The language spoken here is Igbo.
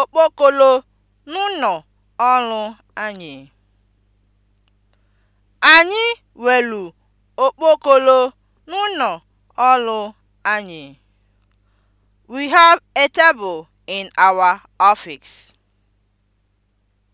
okpokolo n'ụnọ ọrụ anyị. Anyị okpokolo n'ụnọ ọrụ anyị. We have a table in our office.